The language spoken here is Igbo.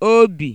obi